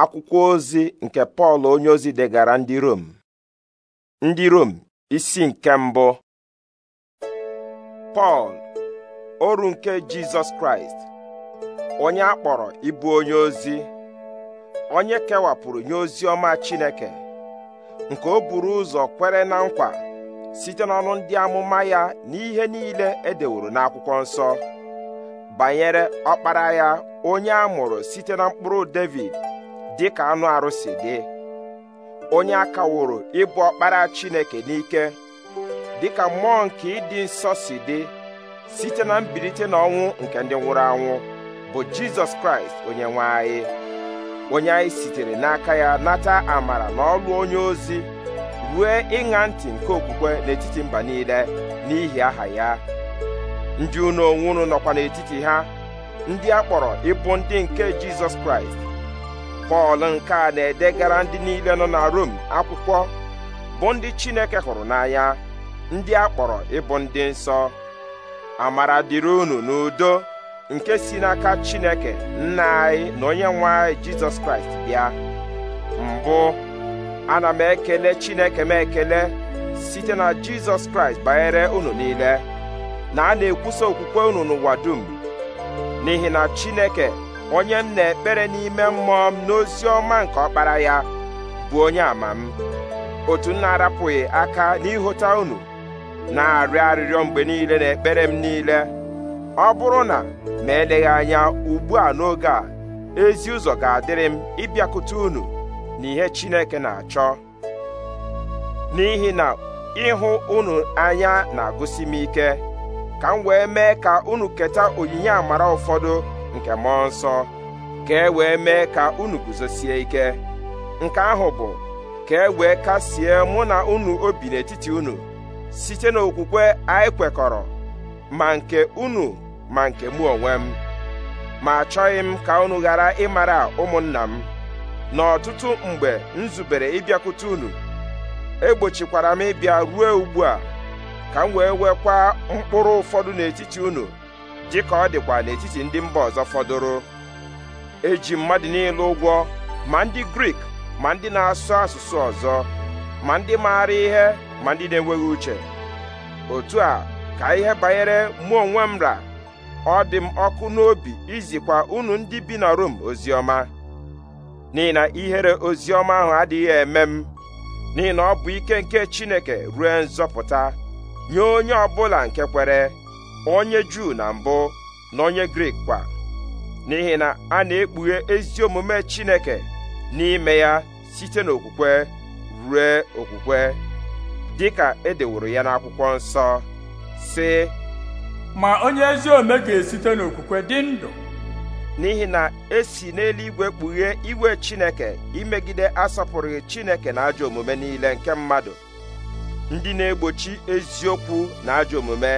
akwụkwọ ozi nke pọl onyeozi degara ndị rom ndị rom isi nke mbụ pọl oru nke jizọs kraịst onye akpọrọ kpọrọ ịbụ onye ozi onye kewapụrụ nye ozi ọma chineke nke o buru ụzọ kwere na nkwa site n'ọnụ ndị amụma ya na ihe niile edeworo n'akwụkwọ nsọ banyere ọkpara ya onye a mụrụ site na mkpụrụ david dị ka anụ arụsị dị onye a kaworo ịbụ ọkpara Chineke n'ike dị ka mmụọ nke ịdị nsọ si dị site na mbilite n'ọnwụ nke ndị nwụrụ anwụ bụ Jizọs Kraịst onye nwe anyị onye anyị sitere n'aka ya nata amara na ọlụ onye ozi rue ịṅa ntị nke okwukwe n'etiti mba niile n'ihi aha ya ndị unu onwe nọkwa n'etiti ha ndị a kpọrọ ịbụ ndị nke Jizọs Kraịst pọl nke a na-edegara ndị niile nọ na rom akwụkwọ bụ ndị chineke hụrụ n'anya ndị a kpọrọ ịbụ ndị nsọ amara dịrị unu n'udo nke si n'aka chineke nna anyị na onye nwe anyị jizọs kraịst bịa mbụ ana m ekele chineke m ekele site na jizọs kraịst banyere unu niile na a na-ekwusa okwukwe unu n'ụwa dum n'ihi na chineke onye m na-ekpere n'ime mmụọ m n'ozi ọma nke ọkpara ya bụ onye ama m otu m na-arapụghị aka n'ịhụta unu na-arịọ arịrịọ mgbe niile na ekpere m niile ọ bụrụ na ma eleghị anya ugbu a n'oge a ezi ụzọ ga-adịrị m ịbịakwute unu na ihe Chineke na-achọ n'ihi na ịhụ unu anya na-agụsi m ike ka m wee mee ka unu keta onyinye amara ụfọdụ nke mmụọ nsọ ka e wee mee ka unu guzosie ike nke ahụ bụ ka e wee kasie mụ na unu obi n'etiti unu site n'okwukwe anyị kwekọrọ ma nke unu ma nke mụ onwe m ma achọghị m ka unu ghara ịmara ụmụnna m n'ọtụtụ mgbe m zubere ịbịakwute unu egbochikwara m ịbịa ruo ugbu a ka m wee wekwa mkpụrụ ụfọdụ n'etiti unu dị ka ọ dịkwa n'etiti ndị mba ọzọ fọdụrụ eji mmadụ niile ụgwọ ma ndị grik ma ndị na-asụ asụsụ ọzọ ma ndị maara ihe ma ndị na-enweghị uche otu a ka ihe banyere mụ onwe m ra ọ dị m ọkụ n'obi izikwa unu ndị bi na Rom oziọma n'ihi na ihere oziọma ahụ adịghị eme m n'ihi na ọ bụ ike nke Chineke ruo nzọpụta nye onye ọ bụla nke kwere onye juu na mbụ na onye grik kwa n'ihi na a na-ekpughe ezi omume chineke n'ime ya site n'okwukwe rue okwukwe dị ka edeworo ya n'akwụkwọ nsọ sị ma onye ezi omume ga-esite n'okwukwe dị ndụ n'ihi na esi n'eluigwe kpughe igwe chineke imegide asọpụrụghị chineke na ajọ omume niile nke mmadụ ndị na-egbochi eziokwu na ajọ omume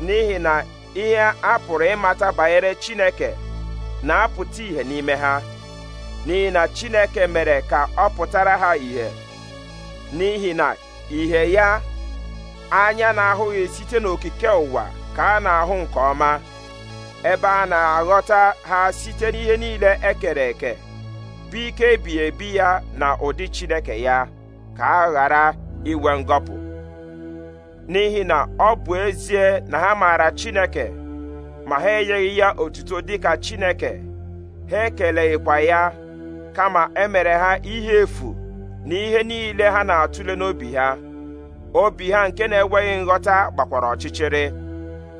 n'ihi na ihe a pụrụ ịmata banyere Chineke na-apụta ìhè n'ime ha n'ihi na Chineke mere ka ọ pụtara ha ìhè n'ihi na ìhè ya anya na-ahụghị site n'okike ụwa ka a na-ahụ nke ọma ebe a na-aghọta ha site n'ihe niile ekere eke bụ ike ebighị ebi ya na ụdị Chineke ya ka a ghara inwe ngọpụ n'ihi na ọ bụ ezie na ha maara Chineke ma ha enyeghị ya otuto dịka Chineke ha ekeleghịkwa ya kama emere ha ihe efu na ihe niile ha na-atụle n'obi ha obi ha nke na-enweghị nghọta gbakwara ọchịchịrị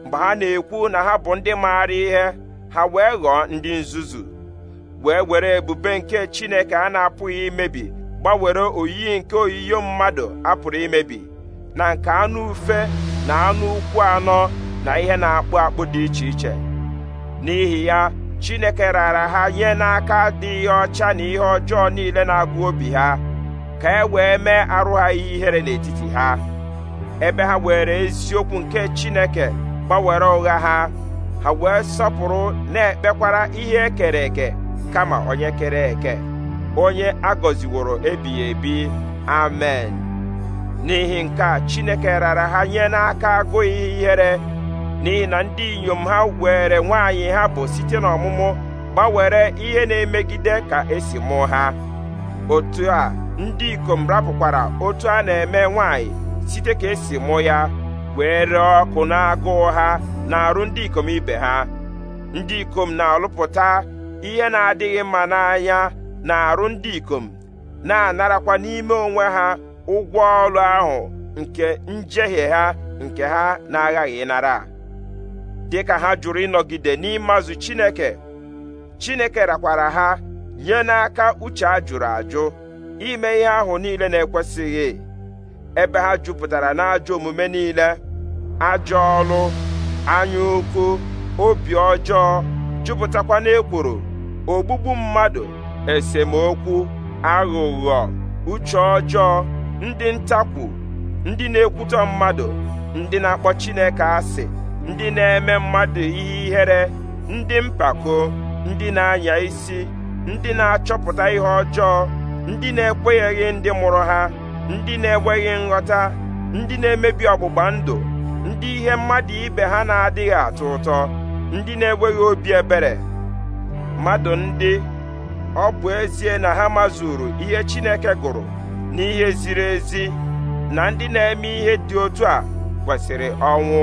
mgbe ha na-ekwu na ha bụ ndị maara ihe ha wee ghọọ ndị nzuzu wee were ebube nke Chineke a na-apụghị imebi gbanwere oyiyi nke oyiyo mmadụ apụrụ imebi na nke anụ ufe na anụ ụkwụ anọ na ihe na-akpụ akpụ dị iche iche n'ihi ya Chineke raara ha nye n'aka ihe ọcha na ihe ọjọọ niile na-agụ obi ha ka e wee mee arụ ha ihere n'etiti ha ebe ha were eziokwu nke Chineke gbanwere ụgha ha ha wee sọpụrụ na-ekpekwara ihe ekere eke kama onye kere eke onye agọziworo ebighị ebi amen n'ihi nke a chineke rara ha nye n'aka agụghị ihere n'ihi na ndị inyom ha were nwaanyị ha bụ site n'ọmụmụ gbanwere ihe na-emegide ka esi mụ ha otu a ndị ikom rapụkwara otu a na-eme nwaanyị site ka esi mụ ya wee ree ọkụ na-agụụ ha na-arụ ndị ikom ibe ha ndị ikom na-alụpụta ihe na-adịghị mma n'anya na-arụ ndị ikom na-anarakwa n'ime onwe ha ụgwọ ọrụ ahụ nke njehie ha nke ha na-aghaghị ịnara dịka ha jụrụ ịnọgide n'ịmazụ Chineke Chineke rakwara ha nye n'aka uche a jụrụ ajụ ime ihe ahụ niile na-ekwesịghị ebe ha jupụtara n'ajọ omume niile ajọ ọrụ anya ukwu obi ọjọọ jupụtakwa n'ekworo ogbugbu mmadụ esemokwu aghụghọ uche ọjọọ ndị ntakwu ndị na-ekwutọ mmadụ ndị na-akpọ Chineke asị ndị na-eme mmadụ ihe ihere ndị mpako ndị na-anya isi ndị na-achọpụta ihe ọjọọ ndị na-ekwenyeghị ndị mụrụ ha ndị na-enweghị nghọta ndị na-emebi ọgbụgba ndụ ndị ihe mmadụ ibe ha na-adịghị atọ ụtọ ndị na-enweghị obi ebere mmadụ ndị ọ bụ ezie na ha mazuru ihe Chineke gụrụ n'ihe ziri ezi na ndị na-eme ihe dị otu a kwesịrị ọnwụ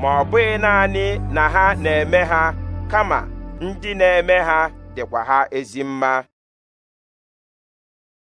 ma ọ bụghị naanị na ha na-eme ha kama ndị na-eme ha dịkwa ha ezi mma